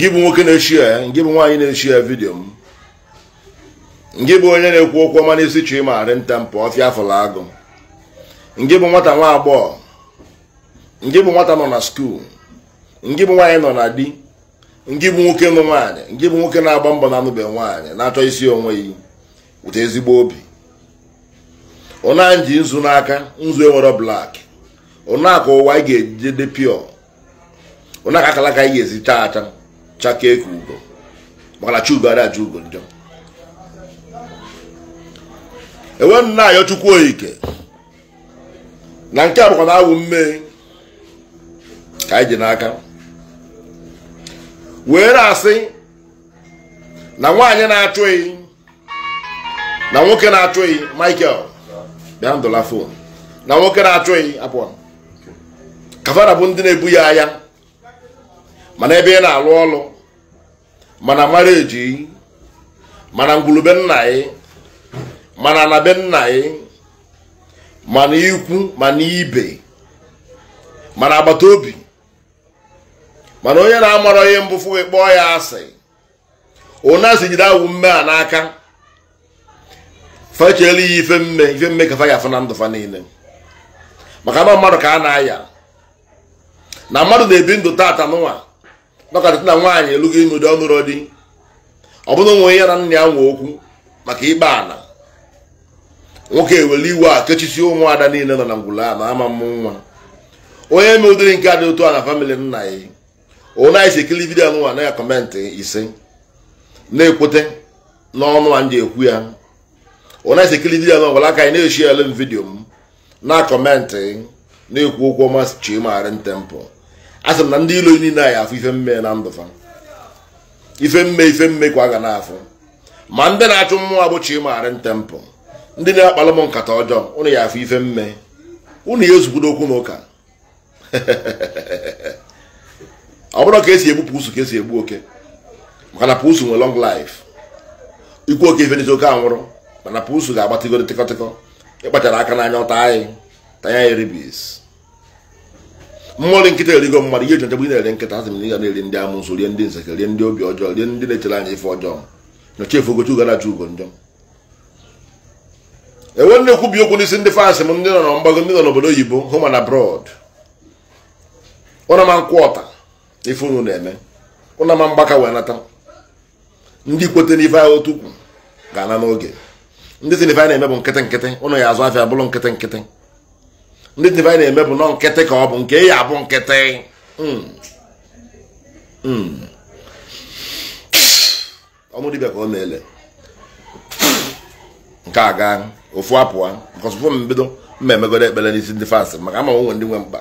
ngị bụ nwoke na-echi ya ngị bụ nwaanyị na-echi ya vidiyo m ngị bụ onye na-ekwu okwu ọma n'isi chi ma nta mpụ ọfịa afọla agụ ngị bụ nwata nwa agbọghọ ngị bụ nwata nọ na skuul ngị bụ nwaanyị nọ na di ngị bụ nwoke nụ nwaanyị ngị bụ nwoke na-agba mbọ na-anụbeghị nwaanyị na-achọ isi onwe ya wute ezigbo obi ụna ji nzu n'aka nzu enwere blak ụna ka ụwa anyị ga-ejide pịọ ụna ka akalaka anyị ga-ezi taa chakee ka ugo maka na ugo ada aja ugo njọ enwe nna ayọ chukwu oyike na nke a bụkwa na awụ mme ka anyị ji n'aka were asị na nwaanyị na-achụ na nwoke na-achụ Michael bịa ndụla fon na nwoke na-achụ ehi apụọ kafara bụ ndị na-ebu ya anya mana ebe ị na-alụ ọlụ mana mara eji mana ngwulube nna anyị mana na be nna anyị mana ikwu mana ibe mana agbata obi mana onye na-amara onye mbụ fụ kpọọ ya asị onye asị jide awụ mme a n'aka fechela ya ife mme ife mme ka fa ya na ndụ fa niile maka na mmadụ ka a na-aya na mmadụ na-ebi ndụ taata n'ụwa nọkarịta na nwaanyị elugo ime ụdị ọnụrụ dị ọ bụrụ nwe ya na nna ya nwe okwu maka ịgba ana nwoke ewere iwe a kechisi ụmụada niile nọ na ngwụla a na ama mmụ nwa onye me ụdịrị nke a dị otu a na famịlị nna ya onye anyị si vidio anụnwa na ya kọmentị ise na-ekwute n'ọnụ a ndị ekwu ya onye anyị si vidio anụnwa gwara aka anyị na-eshi ele m vidio m na kọmentị na-ekwu okwu ọma chi nte ntempụ asị m na ndị ilo niile anyị afụ ife mme na ndụ fa ife mme ife mme kwa a ga na-afụ ma ndị na-achụ mmụọ abụchi ịmagharị ntempụ ndị na-akpalụ m nkata ọjọọ ụnụ ya afụ ife mme ụnụ ya ezukwudo okwu na ụka ọ bụrụ ka esi egbu pusu ka esi egbu oke maka na pusu nwe lọng life ikwu oke ife n'isi oke anwụrụ mana pusu ga-agbatịgo tịkọtịkọ ịkpachara aka n'anya ọta anyị tanya ya ribis mmọnwụ nkịta erigo mmadụ ihe jọjọgbu ị na-eri nkịta asị m na ị ga na-eri ndị amụsụ rie ndị nseke rie ndị obi ọjọọ rie ndị na-echere anya ife ọjọọ nyocha efogochi ugarachi ugo njọ enwe nne kwubi okwu n'isi ndị fans m ndị nọ na mgbago ndị nọ n'obodo oyibo hụ ma na brod ụna nkwụ ọta ife unu na-eme ụna mgbaka wee nata ndị kwete n'ife ahụ otu ukwu ga-ana n'oge ndị si a na-eme bụ nkịtị nkịtị ụnụ ya azụ afịa bụrụ nkịtị nkịtị ndị tivanyị na-eme bụ nọ nkịtị ka ọ bụ nke ya abụ nkịtị hmm. hmm. ọmụ ka ọ na-ele nke a gaa ofu apụa nkọsụfụ m bido mma emegoro ekpere n'isi ndị maka ama nwe ndị nwe mkpa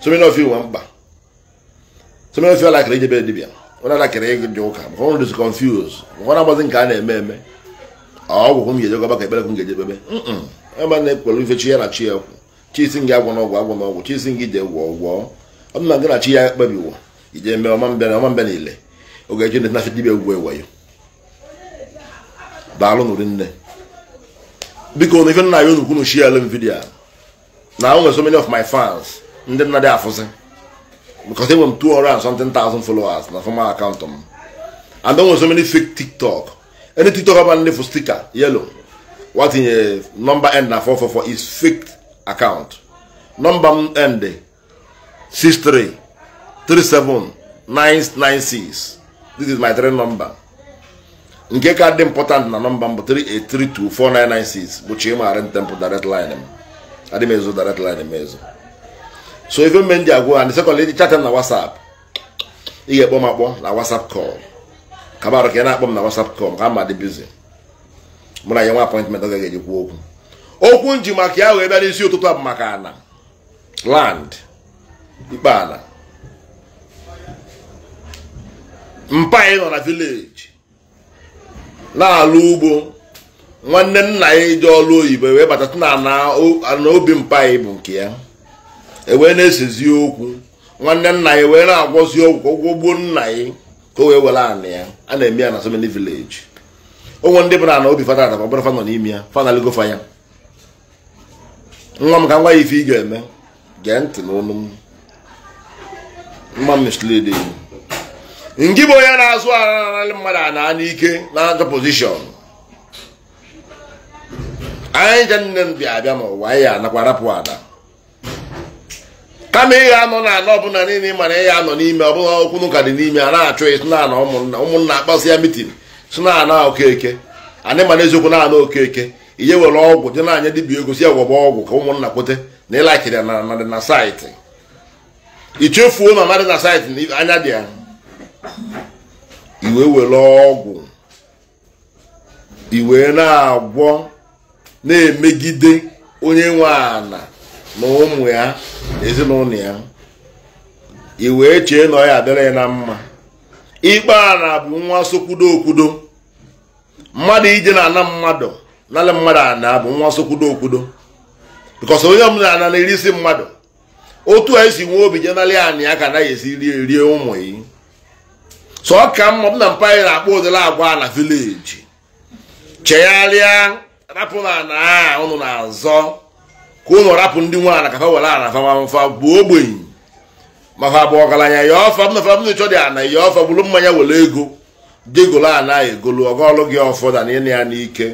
someni nwe mkpa ijebe onye alakịrị ụka maka na-agbazi nke a na-eme eme ọgwụ m ga-ejegọba ka ekpere m ga-ejebebe hmm. ebe na-ekpere ife chi ya na chi ya ekwu chisi gị agwọ n'ọgwụ agwọ n'ọgwụ chisi gị ide gwọ gwọ ọ dị na gị na chi ya kpebiwo ije mee ọma mbịa na ọma mbịa niile oge ji na dibịa ugwu eweyo daalụ biko na ife nna ya onukwu nuchi ya ele m na o so many of my fans ndị nna dị afụzi m na fọma m and o nwere so many fake tiktok any tiktok ọbụla ndị stika yelo watinye nọmba end na 444 is fake akaụntụ nọmba m ndị 6337996 this is my three number nke ka dị important na nọmba m bụ 38324996 bụ Chima temple direct line m adị m ezo direct line m ezo so ife mme ndị agwụ ha ndị sekọnd ịdị chat m na whatsapp ị ga-ekpọ m akpọ na whatsapp call kabarụ ka ị na-akpọ m na whatsapp call ka m ma dị bizi mụ na ya nwa appointment ọ gaghị eji kwuo okwu okwu nji maka ya wee bịa n'isi ụtụtụ bụ maka ana land ikpe ala mpa nọ na vileji na-alụ ugbo nwanne nna ya ji ọlụ oyibo wee batata na obi mpa bụ nke ya ewee na-esezi okwu nwanne nna ya wee na-agwọzi ọgwụ ụgwọ nna ya ka o wee were anị ya a na-eme ya na so vileji onwe ndị bụ na ana obi fada adaba bụrụ fa nọ n'ime ya fa fa ya nwa m ka nwa ife ị ga-eme gee ntị n'ọnụ m mma mislid ngị bụ onye na-azụ ananalị mmadụ a na n'ike na ajọ pozishọn anyị je nne m bịa abịa ma n'ụwa anyị anakwa rapụ ada kama ị anọ na anọ ọbụla niile ị mara ị ga-anọ n'ime ọ ọbụla okwu n'ụka dị n'ime a na-achọ ị sịna na ụmụnna akpọsị ya mitin sịna ana okeke anyị mara eziokwu na ana okeke ihe were ọgwụ dị n'anya anya egosi ego ọgwụ ka ụmụnna kwute na ịlakiri na saịtị ichefuo na amadị na saịtị anya dị ya iwe were ọgwụ iwe na-agwọ na-emegide onye nwe ana na ụmụ ya ezinụlọ ya iwee chee na ọ ya adịrị na mma ikpe a na bụ nwa sokwudo okwudo mmadụ ije na ana mmadụ nala mmadụ ana bụ nwa sokwudo okwudo bikos onye ọbụla na na-eri isi mmadụ otu a esi nwee obi jenali anị ya ka anaghị esi rie rie ụmụ yi so ọ ka mma na mpa na-akpọ ụdịla agwa na vileji chegharịa rapụ na ana a ụnụ na-azọ ka ụnụ rapụ ndị nwe ana kafa were ana famamfa bụ ogbenye maka bụ ọgaranya ya ọfa mna fa mna ịchọ dị ana ya ọfa bụrụ mmanya were ego degolo ana egolu ọgọlụ gị ọfọdụ na ịna ya n'ike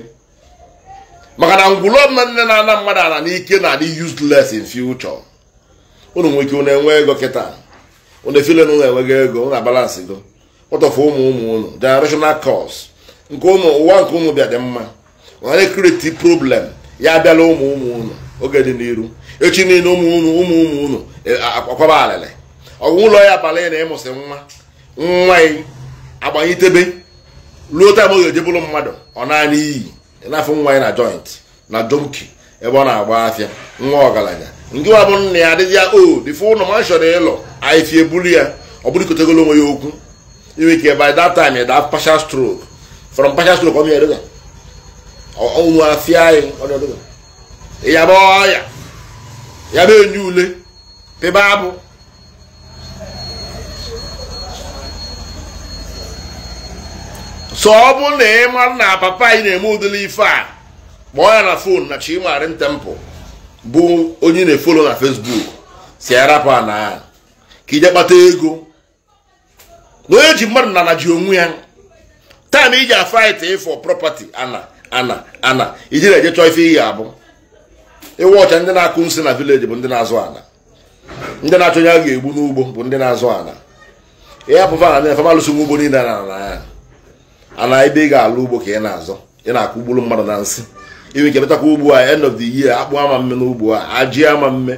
maka na ngwụlọ nne na-ana mmadụ ana n'ike na-adị useless in future unu nwere ike unu enwe ego kịta unu efile na unu enweghị ego na balansị go ụtọfụ ụmụ ụmụ unu generational cause nke ụmụ ụwa nke ụmụ bịa dị mma ọnara ekreti problem ya abịala ụmụ ụmụ unu oge dị n'iru echi niile ụmụ unu ụmụ ụmụ unu e, akwaba alịlị ọgwụ ụlọ ya abalị na ịmụsị nwa nwa agbanyitebe ruo taa ma ga-eje mmadụ ọ naanị iyi na-afụ nwa ya na joint na jonki ebe ọ na-agba afịa nwa ọgaranya ndị nwa bụ nna ya adịghị ya o dịfụ ụlọ ma chọrọ ịlọ anyịfi ebulu ya ọ bụrụ ikotegolo onwe ya okwu inwe ike by that time ya daa partial stroke from partial stroke ọ mịa ọnwụ afịa anyị ọ ya bụ ọya ya bụ enye ule pebe abụ so ọ bụ na ị mara na papa anyị na-eme ụdịrị ife a kpọọ ya na fon na Chimarị Temple bụ onye na-efolo na Facebook si arapụ na ka ije kpata ego na onye ji mmadụ na ji onwe ya taịm iji afaịt ịfọ property ana ana ana iji na-eje chọọ ife iyi abụ ịwa ọcha ndị na-akụ nsị na vileji bụ ndị na-azụ ana ndị na-achọ onye a ga-egbu n'ugbo bụ ndị na-azụ ana ya pụfa na ndị na-efe malụsi ugbo niile na na ya ana ebe ị ga-alụ ugbo ka ị na-azọ ị na-akụ ugburu mmadụ na nsị iwe nke betakwa ugbo a end of the year akpụ ama mme n'ugbo a ajị ama mme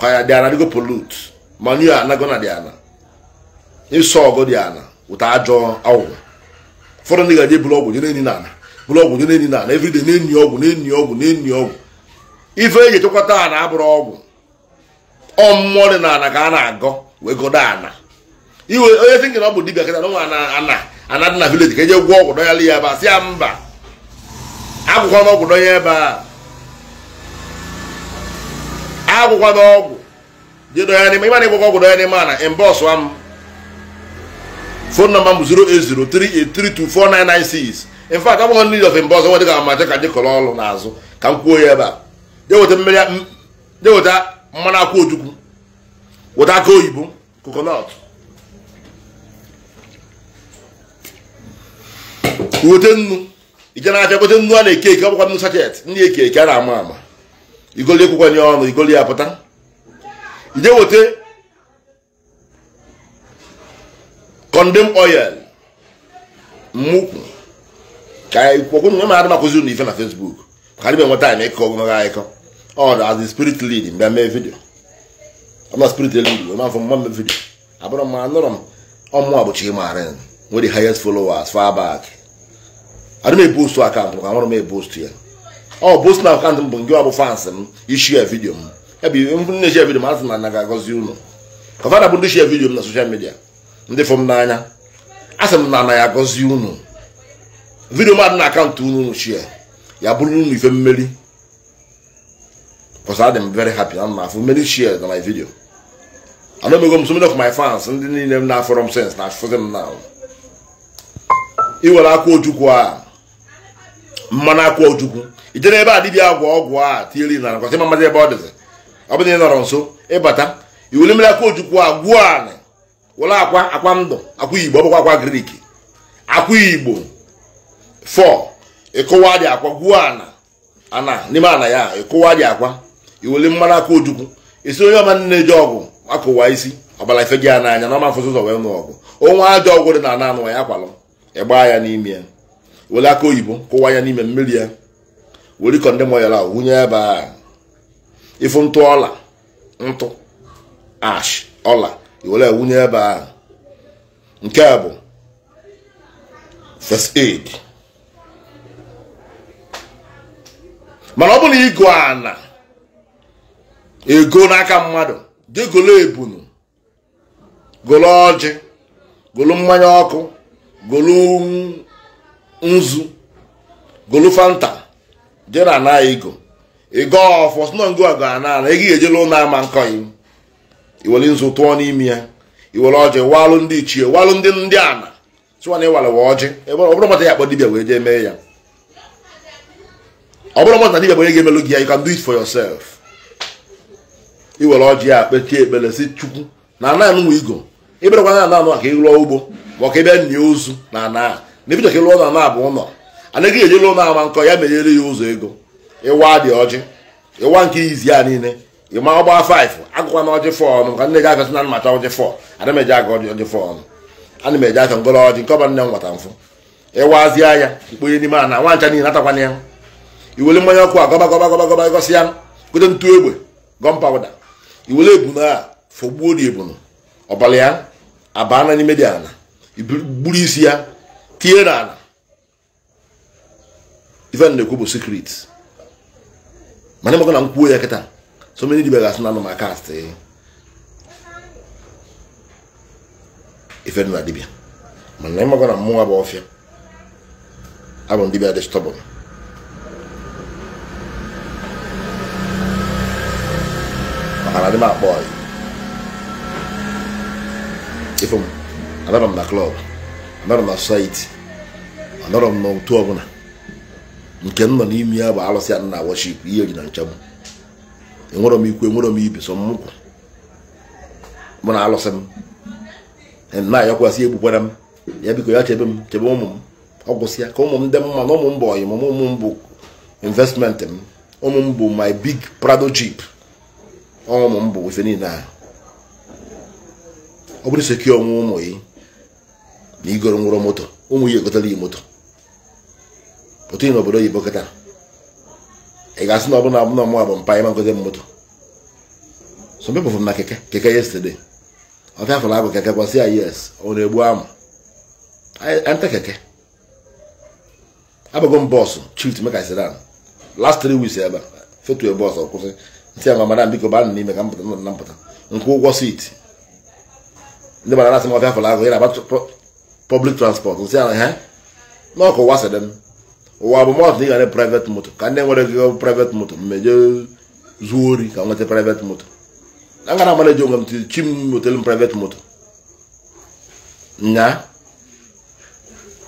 ka ya dị ana dịgo polut manu anago dị ana ịsọ ọgọ dị ana ụta ajọ awụwa ụfọdụ ndị ga-eje bụrụ ọgwụ jere enyi na ana bụrụ ọgwụ jere enyi na ana everyday na-enyi ọgwụ na-enyi ọgwụ na-enyi ọgwụ ife eji echekọta ana abụrụ ọgwụ ọ mmụọ dị na ana ka a na-agọ wee gọda ana iwe onye thinking ọ bụ dibia kịta na ana ana anadị na vileji ka eje gwọ ọgwụ dọnyala ya ebe a sị ya mba agwụkwa na ọgwụ dọnye ebe a agwụkwa na ọgwụ je dọnya n'ime ịma na ịgwụkwa ọgwụ dọnya n'ime a na mbọsụa m fon nọmba m bụ 08038324996 in fact agwụghọ ndị of mbọs nwere dịka ma ka ndị kọrọ ọrụ n'azụ ka m kwuo ya ebe a je weta mmanụ akwụ ojukwu weta aka oyibo kokonọt weta nnu ije na-abịa gote nnu a na-eke eke ọgbakwa nnu sachet ndị eke eke a na-ama ama igoli ekwukwanye ọnụ igoli ya pụta ije weta kondem oil mmụkwu ka ịkwọkwụ nwe ma adị makụzi unu ife na Facebook ka adịbe nweta anyị ịkọ ogologo akụkọ ọ dị as the spirit lead mgbe mee vidio ọ spirit lead wee mafọ mma mee vidio abụrụ m anụrụ m ọmụ a bụchi maara nwere highest followers far back adị m ebustu akaụntụ ka nwere m ebustu ya ọ boost na akaụntụ m bụ nke ọbụ fans m ishi ya vidio m ebe na-eshi ya vidio m asị na na ga-agọzi unu kọfada bụ ndị shi ya vidio m na soshal midia ndị fụ m n'anya asị m na anaghị ya agọzi unu vidio m adị na akaụntụ unu shia ya bụrụ unu ife mmeri because adị m hmm? very happy ana m afụ mmeri shia na my vidio ana omego m so many of my fans ndị niile m na-afọrọ m sens na afụzi m na iwere akwa ojukwu a mmanụ akwa ojukwu ije n'ebe a dibịa agwọ ọgwụ a tinyere na nakwasị mmadụ ebe ọ dịzị ọ bụ na ị nọrọ nso ịbata iwuli mmiri akwa ojukwu agwụ anị were akwa akwa ndụ akwa igbo ọ bụkwa akwa grik akwa igbo fọ ịkụwa dị akwa gwuo ana ana n'ime ana ya ịkụwa dị akwa iweli mmanụ akụ ojukwu esi onye ọma na-eji ọgwụ akụwa isi ọbara ife gị ya n'anya na ọma mfụsụ ụzọ wee nụ ọgwụ onwe ajọ ọgwụ dị na ana anụ ya akwalụ ịgbaa ya n'ime ya were aka oyibo kụwa ya n'ime mmiri ya were ikọ ndị moyara wunye ebe a ifu ntụ ọla ntụ ash ọla were wunye ebe a nke a bụ first aid mana ọ bụla na ịgụ ana ego n'aka mmadụ dị golo ebunu golo ọjị golo mmanya ọkụ golo nzu golufanta je na ana ego ịgo ọfọ sino ngo go ana ana ego ejela ụlọ ama nkọyi iwere nzu tụọ n'ime ya iwere ọjị walụ ndị ichie walụ ndị ndị ana tụwa na ịwalewa ọjị ọ bụrụ mata ya akpọ dibia wee jee mee ya ọ bụrụ mata dibia wee ga-emelu gị ya you can do it for yourself iwere ọjị ya kpetie ekpere si chukwu na ana anụnwa igo ịbịarakwa na ana anụ ka ị rụọ ugbo ma ọ ka ị ozu na ana na ebido ka ụlọ na-abụ ụlọ anaghị eji lụ na-ama nkọ ya menyere ya ụzọ ego ịwa dị ọjị ịwa nke izi ya niile ịma ọgba 5 agụkwa na ọjị 4 ọnụ ka nne gị agasị na mmata ọjị fọ ana m eji aga ọjị 4 ọnụ ana m aka ọjị nke ọba nne m nwata mfụ ịwazie ya ikponye n'ime ana nwa ncha niile ya iwere mmanya ọkụ a gọba gọba gọba gọba gọsị ya gote ntu egbe gọm iwere ebunu a dị ebunu ya abaa n'ime dị isi ya tie n'ala ife na-ekwu bụ secret mana ịmakọ na nkwuo ya kịta so many dibia ga-asụ na anụ kast eh. ife dị na dibia mana ịmakọ na mmụọ bụ ọfịa abụ dibia dị stọbụl maka na adị m akpọ ife m adaba m na klọb anọrọ na site anọrọ m n'otu ọbụla nke m nọ n'ime ya bụ arụsị a na worship ihe ji na nchegbu enwerọ m ikwu enwerọ m ibe so mụ na alụsị m e na-ayọkwasị egbukwara m ya biko ya chebe m chebe ụmụ m ọ gwụsịa ka ụmụ m dị mma na ụmụ m bụ ọyị m ụmụ m bụ investment m ụmụ m bụ my big prado jeep ụmụ m bụ ife niile ahụ ọ bụrụ sekị onwe ụmụ yi na igoro nwụrụ moto ụmụ ya egotara ya moto pụta na obodo oyibo kịta ị ga-asị na ọbụla abụna mụ bụ mpa ịma ngote m moto so mpe pụfụ na keke keke yesterday ọfịa afọrọ abụ keke kwasị ya yes ọ na-egbu amụ anta keke abụgo m bọọsụ chit meka sedan last three weeks ebe fetu bọọsụ kwụsị ntị ama madam biko ba n'ime ka m pụta na mpụta nkwụ ụgwọ sit ndị mara na-asị m ọfịa afọrọ ahụ ya na-agba public transport nsị ala ha n'ọkụ ụwa sịrị m ụwa bụ mọtụ ị gara private ka ndị nwere gị private moto mmejọ zuo ori ka nweta private moto a gara amara eji onwe m chi m private moto nya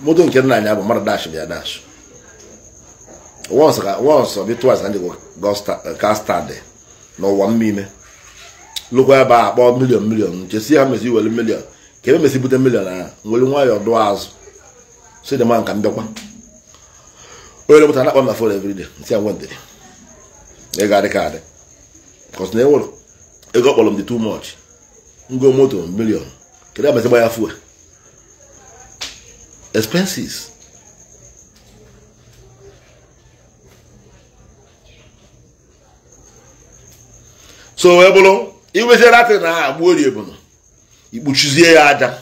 moto nke nna anya bụ mara dash bịa dash once once mmime ebe a akpọ milion ha mezi milion ka mesi bute milion ahụ nwere nwayọọ dụọ azụ so dị mma nka mbịakwa onye rụpụtara na-akpa m na fon nti ya nwendịrị ego adị ka adị kọs na enwere ego kpọrọ m dị too much ngo moto milion kedu abazi gba ya fuel expenses so wee bụrụ iweziere atị na agba ori ebunu ikpuchizie ya aja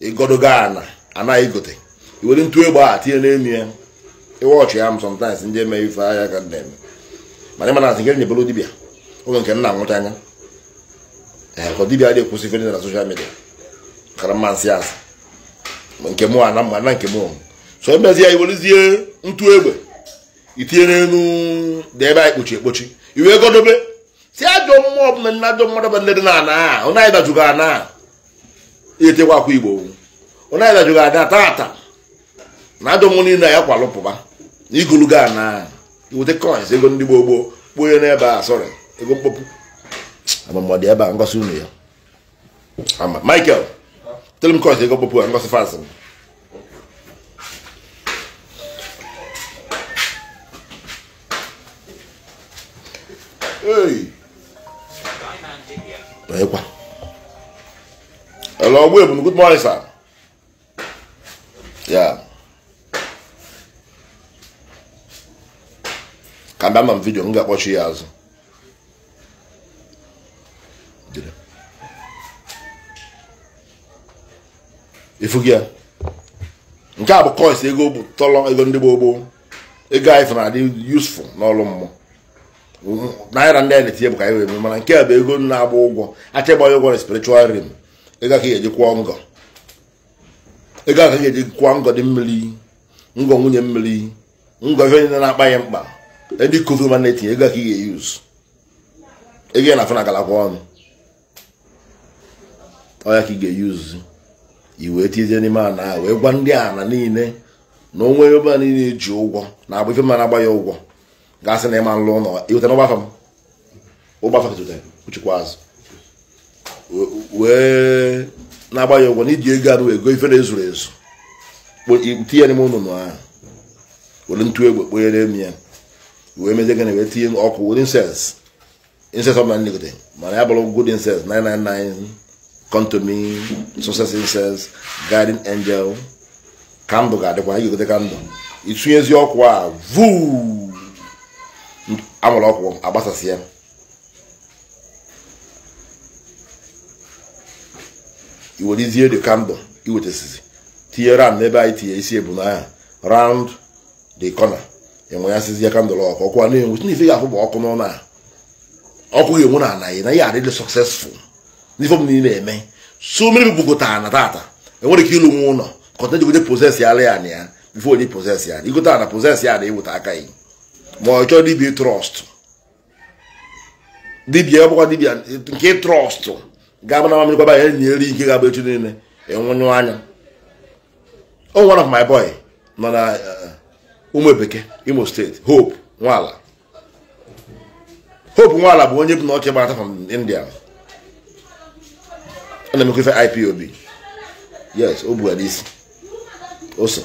ịgodogo ana anaghị gote iwere ntụ egbe a tinye n'elu ya ịwọchị ya m sometimes ndị eme ife ahịa ka na-eme mana ịma na nke nyebolo dibịa oge nke nna nwụcha anya ee eh, ka dibịa dị ekwụsị ife na soshal midia kara mma nsị asị nke mụ ana mma na nke mụ so emezi ya iwerezie ntụ egbe itinye n'elu dị ebe a ekpochi ekpochi iwe godobe si ajọ mmụọ ọbụla ndị ajọ mmadụ bụ ndị dị na ana a ọ naghị dajugo ana a eyetekwa Igbo onye aja ga ada tata na ajọ mmụọ niile ya kwalụ na igolugo a na iweta coins ego ndị gboo kpuo n'ebe a sọrị ego mkpọpụ amamọdị ebe a ngosi unu ya ama Michael tell m coins ego mkpọpụ a ngosi fans m Hey. Ekwa. Hello, Wibun. Good morning, sir. Yeah. Ka bịa ma m vidio m ga-akpọchi ya azụ. Ifu gị ya. Nke a bụ kọịs ego bụ tọlọ ego ndị gboo gboo. Ego anyị fụrụ adị useful n'ọlụ mmụọ. Naira ndị anyị na-etinye bụ ka anyị wee mee mana nke a bụ ego na-agba ụgwọ. Achịgbaghị ụgwọ na spiritual realm. ị gaghị eji kwụọ ngọ ị gaghị eji kwụọ ngọ dị mmiri ngọ nwunye mmiri ngọ ife onye na-akpa ya mkpa edi kovu ma na-etinye ego ka ị ga-eyuz ego na afọ agalakwa ọnụ ọya ka ị ga-eyuzu iwe tizie n'ime ana a wee gwa ndị ana niile na onwe ebe a niile ji ụgwọ na agba ife mara agba ya ụgwọ gasị na ịma nlụ ụlọ ịweta na ụgbafa m ụgbafa ụchekwa azụ wee na-agba ya ụgwọ na iji ego arụ ego ife na-ezuru ezu tinye n'ime ụnụnụ ahụ were ntụ egbe kponyere m ya wee mezie gịnị wee tinye ọkụ were inses na ọbụla nlegide mana ya bụrụ good inses 999 angel kandụl ga-adịkwa igogote kandụl itinyezi ọkụ a vuu amụrụ ọkụ agbasasị ya iwelizie the candle iwetasizi tinye ram n'ebe anyị tinye isi ebunaya round the corner enwe ya sizie kandụl ọkụ ọkụ na-enwu n'ife ga-afụ bụ ọkụ n'ụlọ a ọkụ ga enwe na anaghị na ya adịdị successful n'ife m niile eme so mmiri bụkọtara na tata enwere ike ịlụ nwa ụlọ kọnta jigote poses ya ya na ya bifo onye poses ya igota na poses ya na eweta aka ya ma ọ chọọ dibia trọst dibia ọ bụkwa dibia nke trọst ga-abụ na amamikwaba ya enyi eri ike ga-abụ echi niile ịnwụnyụ e anya o oh, one of my boy nọ na uh, ụmụ ebeke imo steeti hope nwala hope nwala bụ onye bụ na ọchị gbarata from india ọ na-emekwa ife ipob yes o bugara isi ose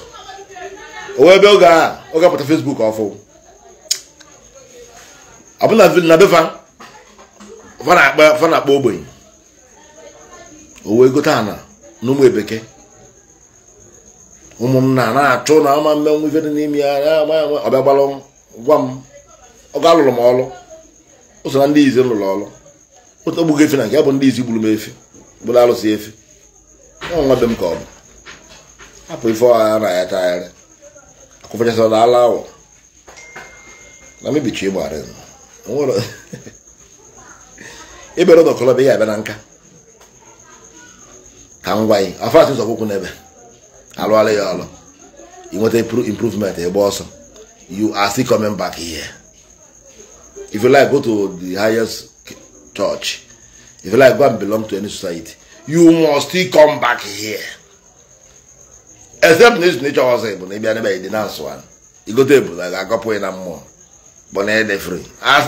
o wee ebe oge a ọ ga facebook ọfụ abụ na befa fa na-akpọ ogbenye o wee gote ana na ụmụ ebeke ụmụnna na-achụ na ama mmenwu ife dị n'ime ya ọbịa gbalụ gwa m ọgụ alụrụ m ọlụ ụso na ndị izi lụrụ ọlụ otu ogbugo efe na nke ya bụ ndị izi gburu m efe gburu alụsị efe nwa be m ka ọ bụ hapụ ife ọha na ya tagharị akụfachasị na ala awọ na mebichi ịgbara ịbere ụlọ kọlọbịa ya abịa na nka ka m gwa gị afat ụzọ kwụkwụ n'ebe alụala ya ọlụ inweta improvement ịgba ọsọ you are still coming back here if you like go to the highest church if you like go and belong to any society you must still come back here except na izu nature ọsọ ịbụ na ịbịa n'ebe dị na nsọ anụ igote ebu na ga-agọpụ na mmụọ bụ na edefere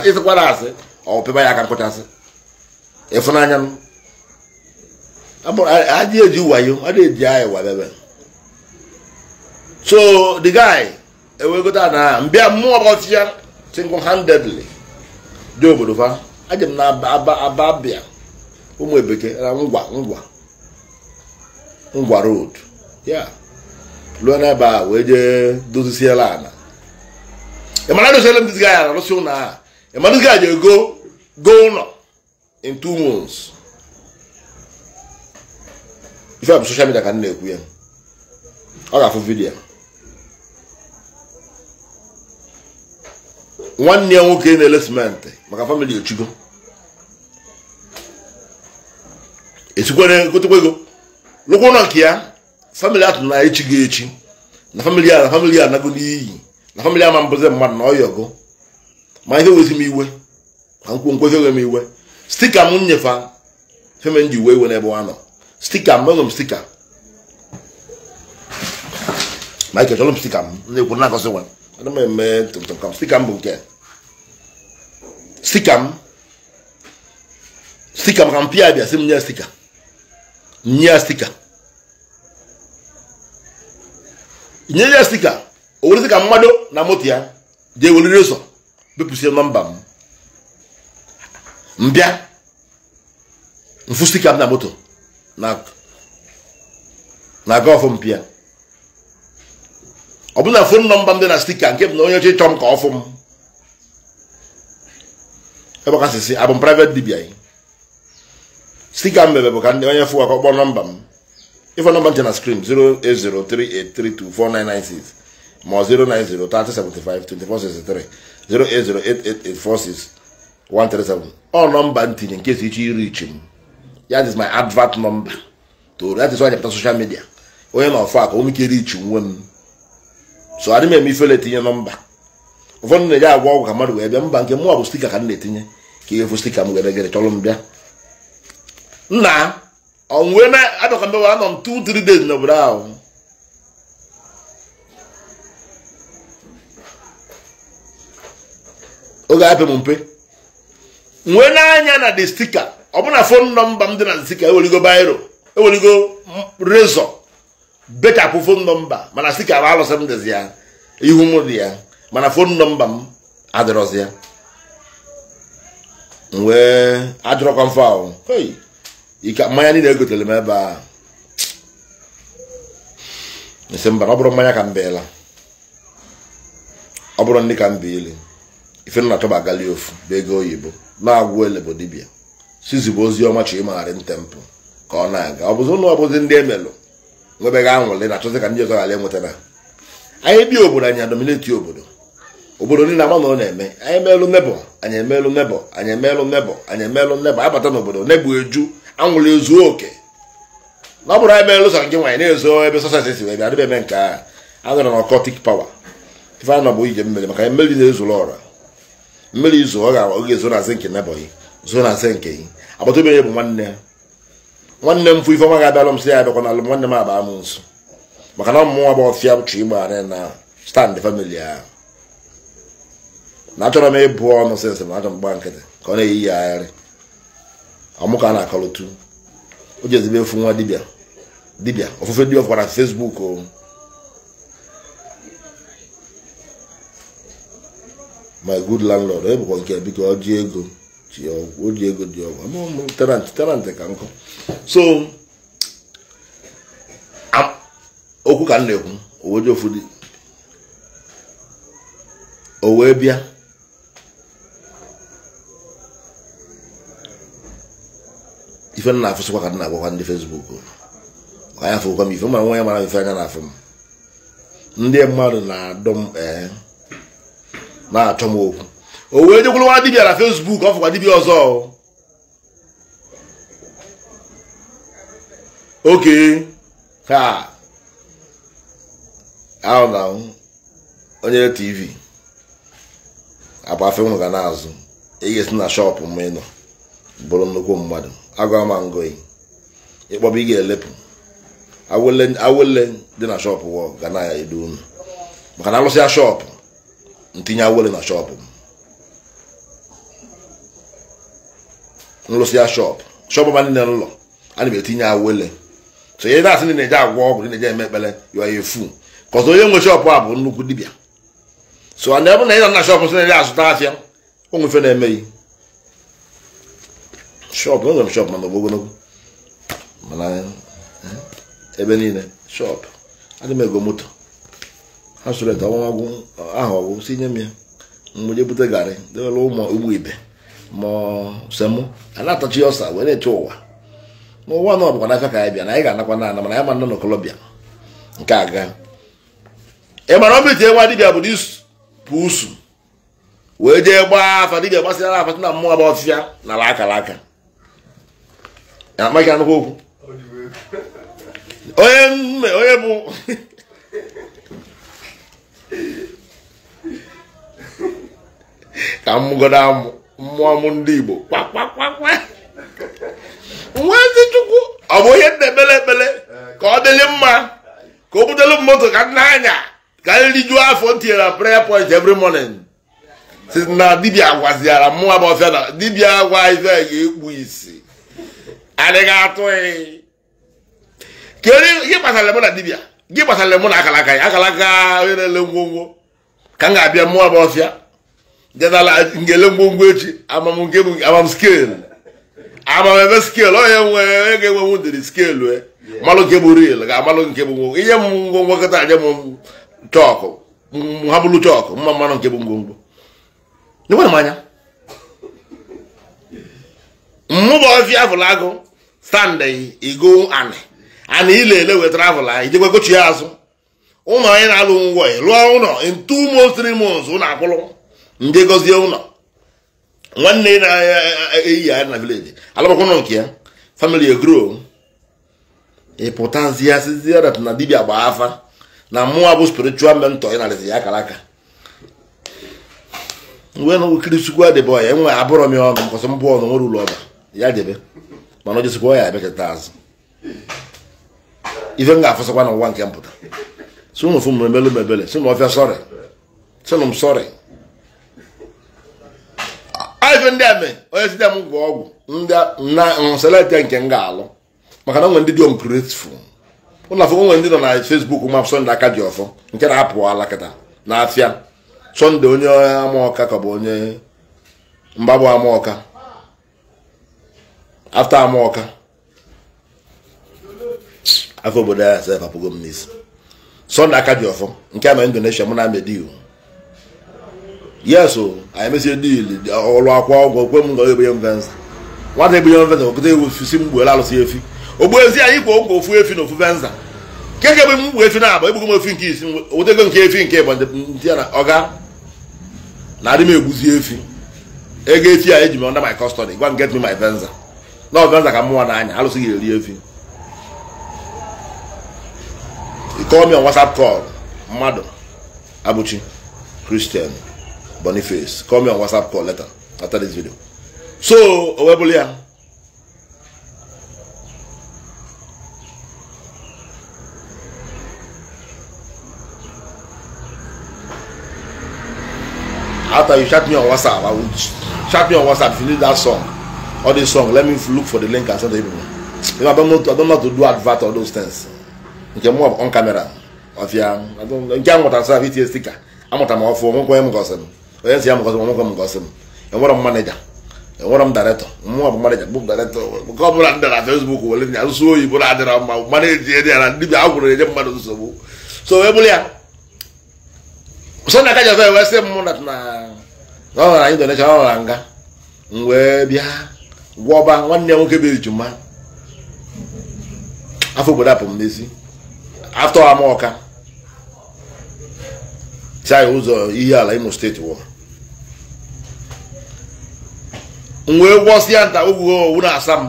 ịsịkwara asị ọ pịba ya aka nkwụchasị ịfụnanya m adị eji wayo adị eji ebe wadebe so the guy ewegota na mbịa mmụọ single handedly dị obodo fa m na ababia ụmụ ebeke na ngwa ngwa ngwa road ya lụọ n'ebe a wee jee dozisiela ana ịmara dozisiela na arụsị ụlọ a go go ife eh. eh, a bụ soshal midia ka na-ekwu ya ọ ga-afụ vidiyo nwanne ya nwoke na-ele simenti maka famili echigo esikwere egotekwa ego lụkwụ ụlọ nke ya famili atụ na echigo echi na famili a na famili a nago n'iyi na famili ama mbụzi mmadụ na ọgụ ma ihe wezi m iwe ka nkwu nkweghị m iwe site ka m nyefa femen ji wee iwe n'ebe ụwa nọ stika m ụlọ m stika Michael chọrọ m stika m na kwuru na-akọsị nwa ana m eme tụmtụm stika m bụ nke stika m stika maka m pịa bịa si m nye stika nye ya stika nye ya stika o were stika mmadụ na moto ya ga weliri ụzọ bepụsie nọmba m mbịa mfụ stika m na moto na gọfụ mpịa ọ bụ na fon nọmba m dị na stika nke m na onye oche chọọ m ka ọ m ebe ka sịsị abụ m private dibia anyị stika m mebe bụ ka ndị onye fụ akọ kpọọ nọmba m ịfọ nọmba nche na skrin 08038324996 ma 09030752463 08088846137 ọ nọmba ntinye nke si iche iri iche m that is my advert number to that is why I social media onye na ọfọ aka onwe ike rich nwe m so adị m eme ifele etinye nọmba ụfọdụ na-eje agwa ọgwụ ka mmadụ wee bịa mba nke mụnwa bụ stika ka m na-etinye ka ihe fụ stika m gere gere chọrọ m bịa nna ọnwụ na adọka anọ m n'obodo ahụ oge apị m mpe nwee n'anya na de stika ọ bụrụ na fon nọmba m dị na nzika eweligo bairo eweligo rezọ bechapụ fon nọmba mana sika bụ alụsị m dịzi ya ihu m dị ya mana fon nọmba m adịrọzi ya wee ajụrọkwa mfe ike mmanya niile egotere m ebe a esi mba ọ bụrụ mmanya ka m beela ọ bụrụ ndị ka m biili ife nna tọba gali ofu bụ ego oyibo na-agwụ ele sizigbo ozi ọma chi ịmagharị ntempụ ka ọ na-aga ọ bụzi ụlọ ọbụzi ndị emelụ nwebeghị anwụrị na-achọzi ka ndị ọzọ ghara enweta na anyị bi obodo anyị adomineti obodo obodo niile ama na ọ na-eme anyị emelụ nebọ anyị emelụ nebọ anyị emelụ nebọ anyị emelụ nebọ abata n'obodo nebụ eju anwụrị ezuo oke na ọ bụrụ anyị melụ sọ gị nwaanyị na-ezo ebe sọsasị si wee bịa adịbe eme nke a anọrọ na ọkọtik pawa ife anọ bụ ije mmiri maka mmeri na-ezuru ọra mmiri izu ọ ga-ezo na zinki nebọghị zoo na zinki agbata obi bụ nwanne ya nwanne m fụ ifeọma ga-abịalụ m sị ya abịakwa na alụ nwanne m abaa m nso maka na ọmụmụ nwa bụ ọfịa chụ igba arị na stand famili ahụ na achọrọ m ịbụ ọnụ sensị na achọ m gba nkịtị ka ọ na-eyi ya agharị ọmụ ka a na-akọlụtu o ji ezigbo efu nwa dibịa dibịa ofufe dị ọfụkwa fesbuk o my good landlord ebụkwa eh, nke biko ọ ji ego o ji ego dị ọgwụ ama talent talent ka so okwu ka m na-ekwu owe ofu dị o wee bịa ife m na-afụsịkwa ka m na-agwakwa ndị fesbuk ka fụkwa m ife mara nwa ya mara ife anya na-afụ m ndị mmadụ na-adọ m na-achọ m okwu o wee nwa dibia na fesbuk ọ fụkwa dibia ọzọ oke ha ahụ na onye tv agbafe m ga na-azụ e esi na shọpụ m ịnọ bụrụ nnukwu mmadụ agụa ma ngoyi ịkpọba ị ga-elepụ awele dị na shọpụ ga na-edu unu maka na alụsịa shọpụ ntinye awele na shọpụ m nrụsị ya shọp shọp ọba niile n'ụlọ na m etinye awele so ihe na-asị ndị na-eje agwọ ọgwụ ndị na-eje eme ekpere yọọ ya efu ka ọzọ onye nwe shọp a bụ nnukwu dibịa so na ebe na ịna na shọp sị na-ere azụta afịa onwefe na-emeghị shọp enwere m shọp mana ogologo mana eh, eh, ebe niile shọp adị m ego moto ha sụrụ ete ọnwa ahụ ọgwụ si nye m ya mgbe je bute garị dewere ụmụ ụgbọ ibe ma semụ anyị na-atachi ya ọsa wee na-eche ụwa n'ụwa na ọbụkwa n'aka ka anyị bịa na anyị ga-anakwa na ana mana anyị ma nọ n'okolobịa nke aga ị mara ọbụ itinye nwa dibịa bụ n'ipụ usu wee jee gbaa afa dibịa gbasịara afa na mmụọ bụ ọfịa na ala akara aka amaghị anụkwa okwu onye nne onye bụ ka mmụgodo amụ mmụọ ndị Igbo ndị chukwu ọ bụ ihe na-ekpere ekpere ka ọ dịrị mma ka o butelu moto ka nna anya ka nrijuo e afọ tinyere na prayer point every morning si na dibia gwaziara mmụọ bụ ọfịa na dibia gwa ife ga-ekpu isi adịghị atụghị kedu gị gbasara mụ na dibia gị gbasara mụ na akalaka ya akalaka onye na-ele ngwongwo ka m ga-abịa mmụọ bụ ọfịa njedala ngele ngwongwo echi amamnke bụ amam skeelụ amamebe skeelụ onye nwee ga-enwenwu ndịrị skeelụ e malụ nke bụ real ga-amalụ nke bụ ngwongwo ihe m ngwongwo kịta nye m chọkụ ha bụrụ chọkụ mma mmanụ nke bụ ngwongwo enwere m anya mmụba ọfịa avụl agụ sande igo anị anị ilele wetara avụla ijekwa kochi chi azụ ụmụ anyị na-alụ ngwa ngwọ lụọ ụlọ in two months three months ụlọ akwụlụ ndị gọzie ụlọ nwanne na-eyi ya na vileji alụbakwụnụ nke ya famili egro ịpụtazi ya na dibia gba afa na mmụọ bụ spiritual mentor ị narịzi ya akara aka nwee na okiri sukwu adịbe ọya enwe abụrọ m ya ọnụ mbụ ọnụ nwere ụlọ ọba ya debe mana ojesikwa ya e azụ ife m ga na ụwa nke mpụta si fụ mebele si na ọfịa sọrị si na m ife ndị ame onye site m gwọ ọgwụ na selekte nke m ga-alụ maka na onwe ndị dị ungrateful ụlọ afọ onwe ndị nọ na Facebook ma Sunday aka dị ọfọ nke na-apụ alakịta kịta na afịa Sunday onye amaọka ka bụ onye mgbagbu amaọka afta amaọka afọ obodo ya sef apụgo m n'isi Sunday aka dị ọfọ nke ama indonesia mụ na amediu yes o anyị mesie dil ọrụ akwa ọgwụ kwe m ga egbenye m venza nwata egbenye m venza okụta ewu si m gbuola alụsị efi ogbu ezi anyị kwa ụgwọ ofu efi na ofu venza nke ga egbe m efi na-agba egbugo m efi nke isi wetego nke efi nke ịgba ndị na ọga na adị m egbuzi efi ego efi a eji m under my custody gwa m get me my venza na ọ venza ka m n'anya alụsị ga-eri efi call me on whatsapp call mmadụ abụchi kristian Boniface. Call me on WhatsApp call later after this video. So, Owebulia. After you chat me on WhatsApp, I will chat me on WhatsApp if you need that song. All this song, let me look for the link and send it to you. If I don't know, to, I don't know to do advert or those things. You can move on camera. Of your, I don't, you can't want to serve it sticker. I'm not a mouthful, I'm going to go onye si ya mgọzi m nwoke m ngọzi m enwere m manịja enwere m dairektọ mụnwa bụ bụ ọ bụla ndị na fesbuk were nya oyibo na-adịra mma na ndị bi agwụrụ enye mmadụ nsogbu so ya so wee sị m na anyị nga m wee bịa gwọba nwanne ya nwoke bụ ejuma afọ obodo apụ m n'isi afọ ọka si anyị ụzọ ala imo steeti wee gwọsịa nta ogwugo owu na-asa m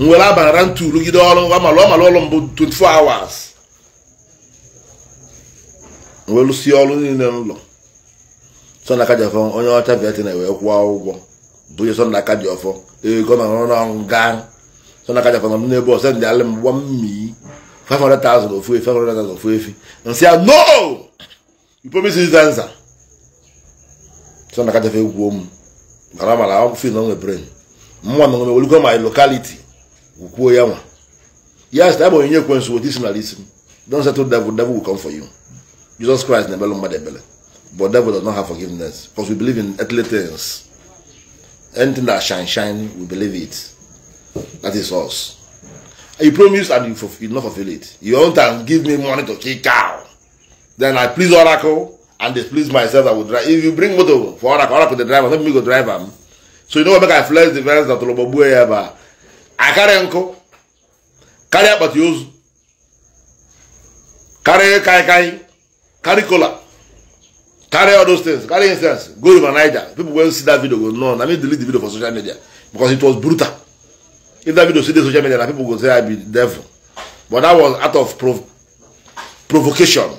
nwere abara ntu rugide ọrụ amalụ ọmalụ ọrụ mbụ 24 hours wee lụsie ọrụ niile n'ụlọ sọna aka onye ọcha viatina wee kwụọ ụgwọ bụ sọna ọfọ ego na ọrụ ọrụ gaa nọ n'ebe ọsọ ndị alị mmii 500,000 ofu efi 500,000 ofu efi nsị a no you promise is answer egwuo m ngarama na akwụkwọ na onwe brain mma na onwe olugo my locality ukwuo ya nwa yes that boy onye ekwensu wot isi nala isi m don settle devil devil will come for you jesus christ na-ebelu mmadụ ebele but devil does not have forgiveness because we believe in earthly things anything that shine shine we believe it that is us you promise and you, fulfill, you not fulfill it you want to give me money to kick out. then i please oracle and displease myself I would drive if you bring motor for ọra ka ọra go dey drive am no me go drive am so you know what make I flex the fence na tolobogbu ya ebe a ah? akarị nkụ karịa akpati ozu karịa kaikai carry kola carry all those things carry instance go river niger people wey see that video go know na me delete the video for social media because it was brutal if that video see the social media na people go say i be devil but that was out of prov provocation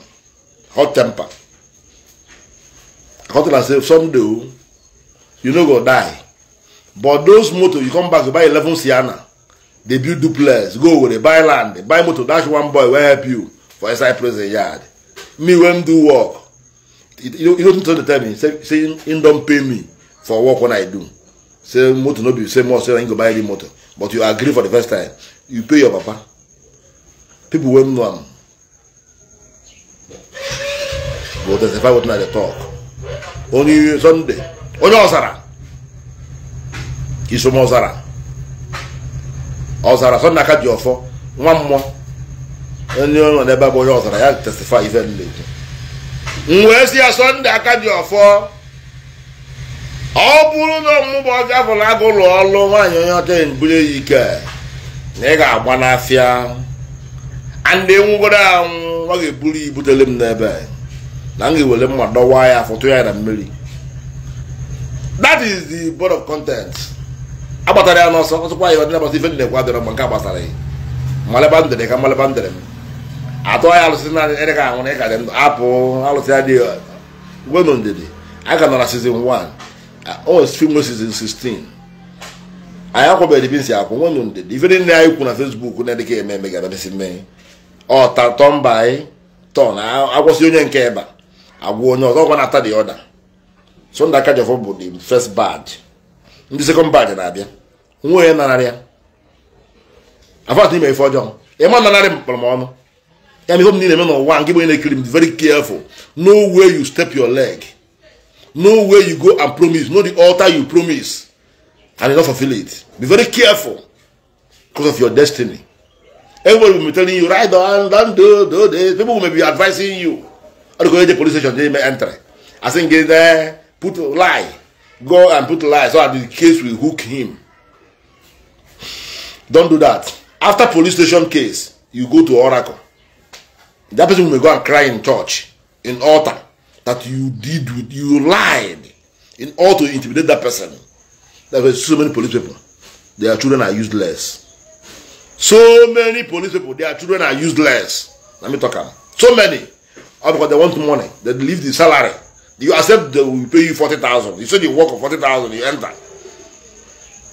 hot temper come tell am say someday o you no go die but those motor you come back to buy eleven sienna dey build duplex go owerri buy land dey buy motor dash one boy wey help you for inside prison yard me wey do work you no need to tell me say say him don pay me for work wey i do say motor no be say more say him go buy any motor but you agree for the first time you pay your papa people wey know am go testify wetin i dey talk onye Sọnde onye ọzara isom ọzara ọzara Sọnde aka ji ọfọ nwa mmụọ onye nọ n'ebe bụ onye ọzara ya testify ife m na-ekwu wee si ya Sọnde aka ji ọfọ ọ bụrụ na ọmụmụ ọbịa bụ na agụ ụlọ ọrụ nwaanyị onye ọcha bunye ya ike na ị ga-agba n'afịa ndị nwụgoro anwụ ọ ga-eburu ibutere m n'ebe na m ewere mma dọwa ya afọ tụ ya na mmiri that is the board of content agbatara ya n'ọsọ ọsọkwa ya ọdịna gbasa ife dị na-ekwe adịrọ mgbe nke a gbasara ya mmaleba m ka m dere m atụ ya alụsị na ịdị ka anwụrụ ịka dị ndụ apụ alụsị ya dị gwenu uh, ndidi a ka nọ na season 1 o film season 16 anyị akwabeghị dibinsi akwụ nwenu ndidi ife anyị kwu na Facebook na-edịka eme eme mee ọ anyị tọn onye nke ịba agwa onye ọzọ gwa na-ata the other so ndị aka jọfọ bụ the first badge ndị second badge na-abịa nwa onye nararị ya afọ ime ife ọjọọ ịma nanarị m kpọrọ m ọnụ ya mere ihe m niile eme n'ụwa nke bụ na-ekiri m very careful no where you step your leg no where you go and promise no the altar you promise and you no fulfill it be very careful because of your destiny everybody will be telling you right on don't do do this people will be advising you Or go to the police station, they may enter. I think get there, put lie. Go and put lie so that the case will hook him. Don't do that. After police station case, you go to Oracle. That person will go and cry in church, in altar, that you did with, you lied in order to intimidate that person. There were so many police people. Their children are useless. So many police people, their children are useless. Let me talk about So many. or oh, because they want money, they leave the salary. You accept they will pay you 40,000. You say you work for 40,000, you enter.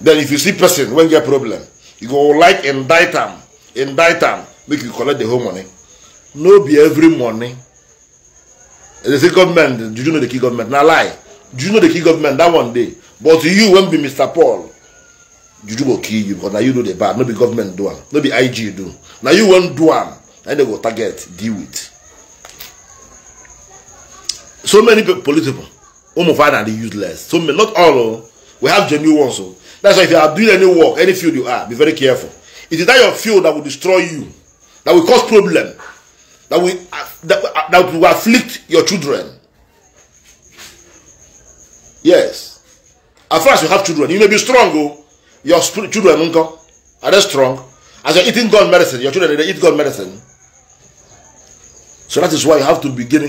Then if you see person when get problem, you go like indict them, indict them, make you collect the whole money. No be every money. They say government, Do you know the key government? Now lie. Do you know the key government that one day? But you won't be Mr. Paul. You do go key you because now you do the bad. No be government do am. No be IG do. Now you won't do am. Then they go target, deal with so many police people Umufan oh, are the useless so many not all o oh. we have genuine ones o oh. that's why if you are doing any work any field you are be very careful it is that your field that will destroy you that will cause problem that will uh, that, uh, that will afflict your children yes as far as you have children you may be strong o your children nko are they strong as you're eating God medicine your children dey eat God medicine so that is why you have to begin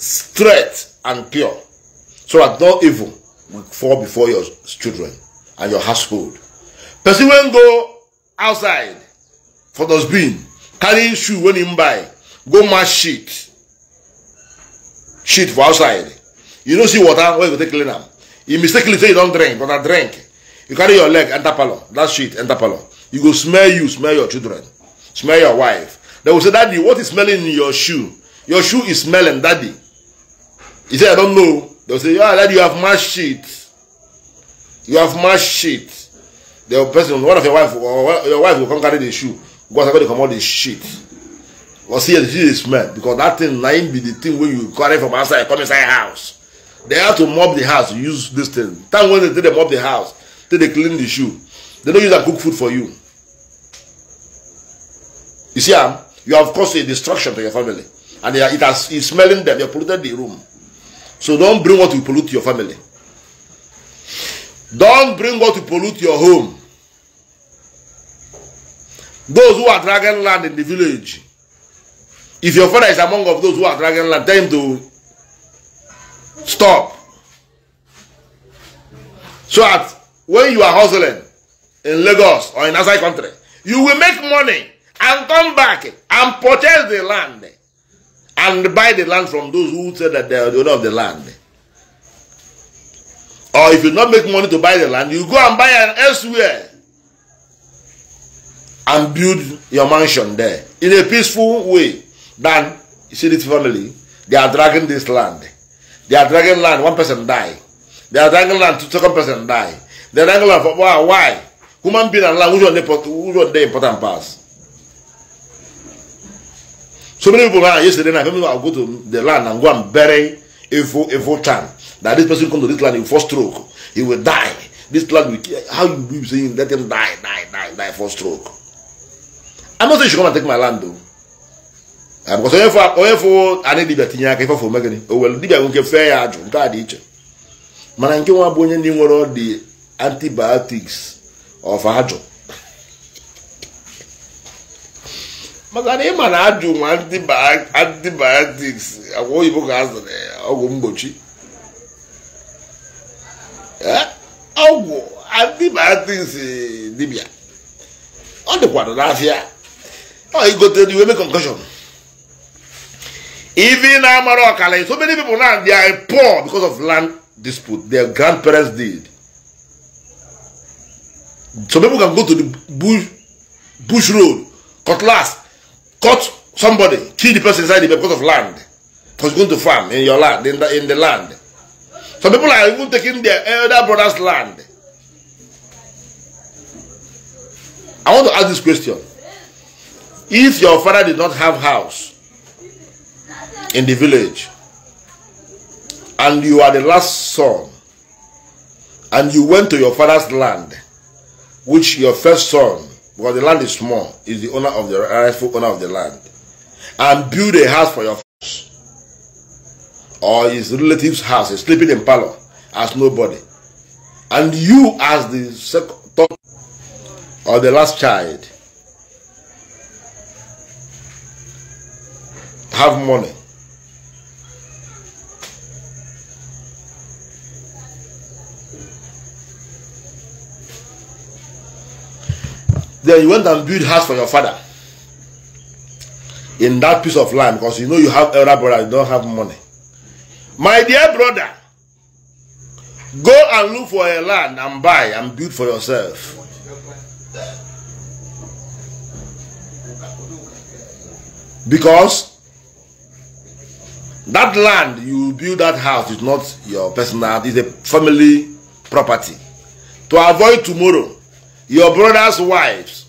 straight and pure so that no evil will fall before your children and your household. Person when go outside for those being carrying shoe when him buy go mash shit, shit for outside you no see water where you go take clean am you mistakenly say you don drink but na drink you carry your leg enter parlour that sheet enter parlour you go smell you smell your children smell your wife they go say daddy what is smelling in your shoe your shoe is smelling daddy He said, I don't know. They say, Yeah, that you have match shit. You have match shit." The person, one of your wife, or your wife will come carry the shoe. Go and come out the shit. Or see, see the smell. Because that thing, nine be the thing when you carry from outside, come inside house. They have to mop the house, use this thing. Time when they, they mop the house, till they clean the shoe. They don't use and cook food for you. You see, um, you have caused a destruction to your family. And are, it has, it's smelling them, you polluted the room. So don't bring what will pollute your family. Don't bring what will pollute your home. Those who are dragging land in the village, if your father is among of those who are dragging land, tell him to stop. So that when you are hustling in Lagos or in outside country, you will make money and come back and purchase the land and buy the land from those who say that they are the owner of the land. Or if you not make money to buy the land, you go and buy an elsewhere and build your mansion there in a peaceful way. Then you see this family, they are dragging this land. They are dragging land, one person die. They are dragging land, two second person die. They are dragging land for why? Human being and land, which one which one they important pass? So many people right yesterday night, people will go to the land and go and bury evil evil time. That this person come to this land in first stroke, he will die. This land will how you be saying let him die, die, die, die for stroke. I'm not saying you should come and take my land though. Uh, because onye fọ onye fọ anị dibịa tinye aka ife fọ megịnị o were dibịa nwoke fee ya ajụ nke a dị iche mana nke nwa bụ onye ndị nwere ọdị antibiotics of ajụ maka na ị ma na ajụ nwa antibiotics agwa oyibo ka azụrụ ọgwụ mgbochi e, ọgwụ antibiotics dibia ọ dịkwado n'afịa ọ igote iwe mee concussion even na amara ọkala so many people now they are poor because of land dispute their grandparents did so people can go to the bush bush road cutlass cut somebody, kill the person inside the because of land. Because going to farm in your land, in the, in the land. Some people are even taking their elder brother's land. I want to ask this question. If your father did not have house in the village, and you are the last son, and you went to your father's land, which your first son because the land is small, is the owner of the rightful owner of the land, and build a house for your folks, or his relative's house, is sleeping in parlor as nobody, and you as the second or the last child have money then you went and build house for your father in that piece of land because you know you have elder brother you don't have money my dear brother go and look for a land and buy and build for yourself because that land you build that house is not your personal it's a family property to avoid tomorrow Your brother's wives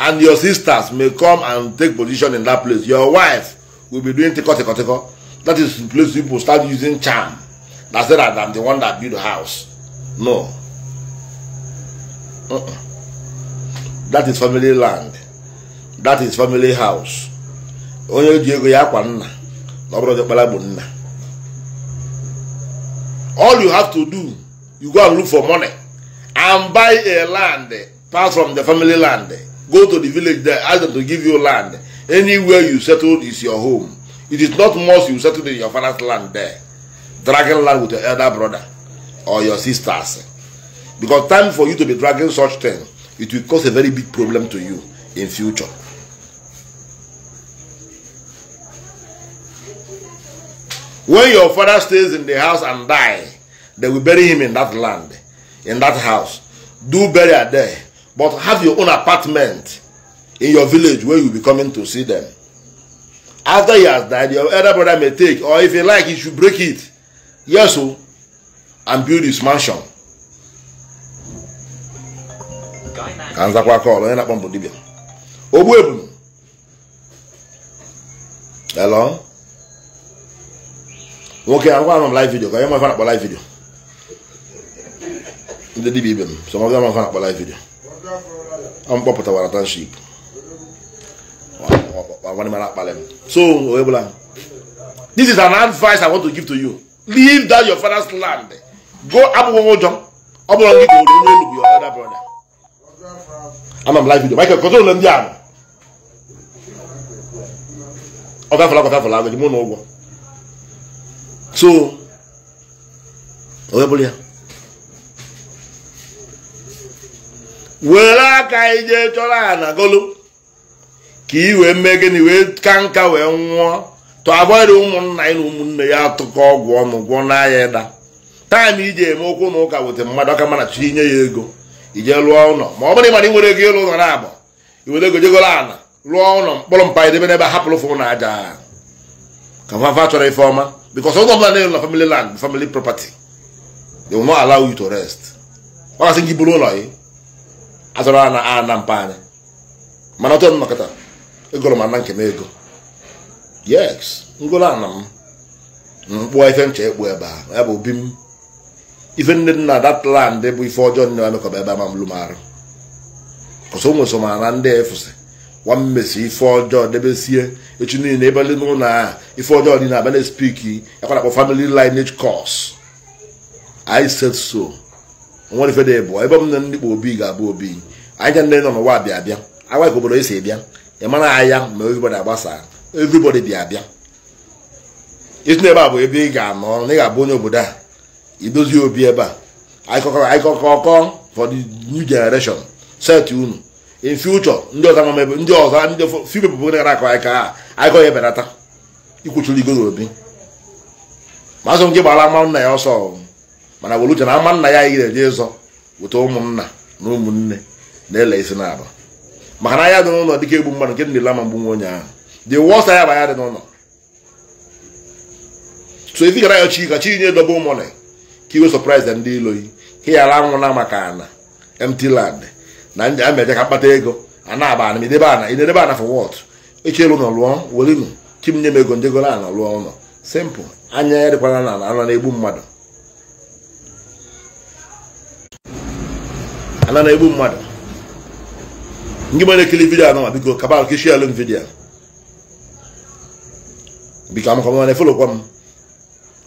and your sisters may come and take position in that place. Your wife will be doing tiko tiko tiko. That is the place people start using charm. That's it. I'm the one that build the house. No. Uh -uh. That is family land. That is family house. Onye ji ego ya akwa nna na ọ bụrụ ọdịkpara bụ nna. All you have to do, you go and look for money and buy a land pass from the family land. Go to the village there, ask them to give you land. Anywhere you settled is your home. It is not much you settled in your father's land there. Dragging land with your elder brother or your sisters. Because time for you to be dragging such thing, it will cause a very big problem to you in future. When your father stays in the house and die, they will bury him in that land, in that house. Do bury there but have your own apartment in your village where you'll be coming to see them. After he has died, your elder brother may take, or if he like, he should break it. Yes, so, oh, and build his mansion. Eh, Hello? I'm going live video, live video. live video. mkpọpụtawara township so onye this is an advice i want to give to you leave that your father's land go abụghị ụjọ ọ bụrụ gị ka oru onye elugwu your elder brother ana m live video michael kọtụrụ ụlọ ndị ahụ ọ gafela gọtafela agụ dị mụ na ụgwọ so onye ya were aka anyị chọrọ ana golu ka i wee mee gịnị wee ka nka wee nwụọ tụabarị ụmụnna anyị na ụmụnne ya atụkọ ọgwụ ọnụ gwọ n'anya ịda taịm iji eme okwu na ụka weta mmadụ aka mana chi nye ya ego ije lụọ ụlọ ma ọ bụrụ ịmara ị nwere ego ịlụ ụlọ na i were ego jegoro ala lụọ ụlọ mkpọrọ mpa edebe n'ebe hapụrụ fụ na aja ka fafa chọrọ ife ọma bikos ụlọ ọbụla na-elu na family land family property they will ala allow to rest ọ gasị gị buru ụlọ gị azụrụ a na mpa anyị mana ọtọ nnọkọta egoro m ana nke m ego yes ngolo ana m mkpụọ ife ncha ekpu ebe a ya bụ obi m ife nne nna that land bụ ife ọjọọ nne m emekọba ebe a ma m arụ kọsọ nwe so na ndị efusi nwa mmesi ife ọjọọ debesie echi niile ebe ndị n'ụlọ a ife ọjọọ na abịa na-espiki ekwa na akpọ family lineage course i said so nwere ife dị bụ ebe m na ndị kpa obi ga-abụ obi anyị ndị nọ n'ụwa bịa abịa agwa ka obodo esi ebịa ị mara anya ma everybody agbasa everybody bịa abịa isi na ebe a bụ ebe ị ga-anọ na ị ga-abụ onye obodo a idozi obi ebe a akọkọ for the new generation set unu in future ndị ọzọ ama ebe ndị ọzọ ndị fibe bụ gara akọ anyị ka akọ ya ebelata ikwuchiri igoro obi ma azụ nke gbara ama nna ya ọsọ mana were uche na ama nna ya anyị ga-eje ịzọ weta ụmụnna na ụmụnne na-ele isi na maka na anya dị n'ụlọ dịka egbu mmadụ nke ndị n'ile ama mgbu nwa onye ahụ dị wọsa ya dị n'ụlọ so ezi gara ya chi ka chi nye dobe ụmụnne ka iwe sọpraịz ndị iloyi ka ya ara na maka ana empty land na ameje ka kpata ego a na-aba ana idebe ana idebe ana for wot echelu ụlọ lụọ welinu kim nye m ego njegoro ana lụọ ụlọ simple anya ya dịkwana na ana na-egbu mmadụ ana na-egbu mmadụ ndị ma na-ekiri vidio anọ biko kabal ka ishie alụm vidio biko amaka mana efolokwa m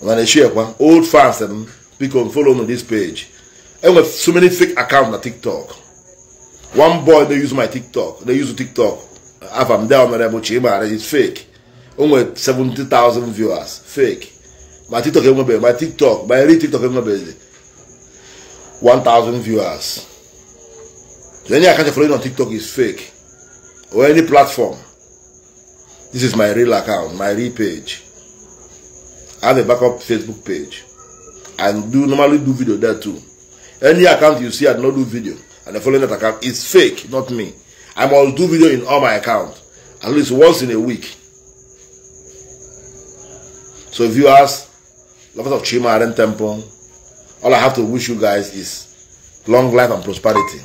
mana eshiekwa old fans m biko folo follow m this page enwe so many fake account na tiktok one boy dey use my tiktok dey use tiktok afa m dea mere bụchi ịmara is fake o nwere thousand viewers fake my tiktok enwebeghị my tiktok my real tiktok enwebeghị 1,000 viewers any account you're following on TikTok is fake. Or any platform. This is my real account, my real page. I have a backup Facebook page. and do normally do video there too. Any account you see I do not do video and the following that account is fake, not me. I must do video in all my accounts at least once in a week. So if you ask, lovers of Chima Aden Temple, all I have to wish you guys is long life and prosperity.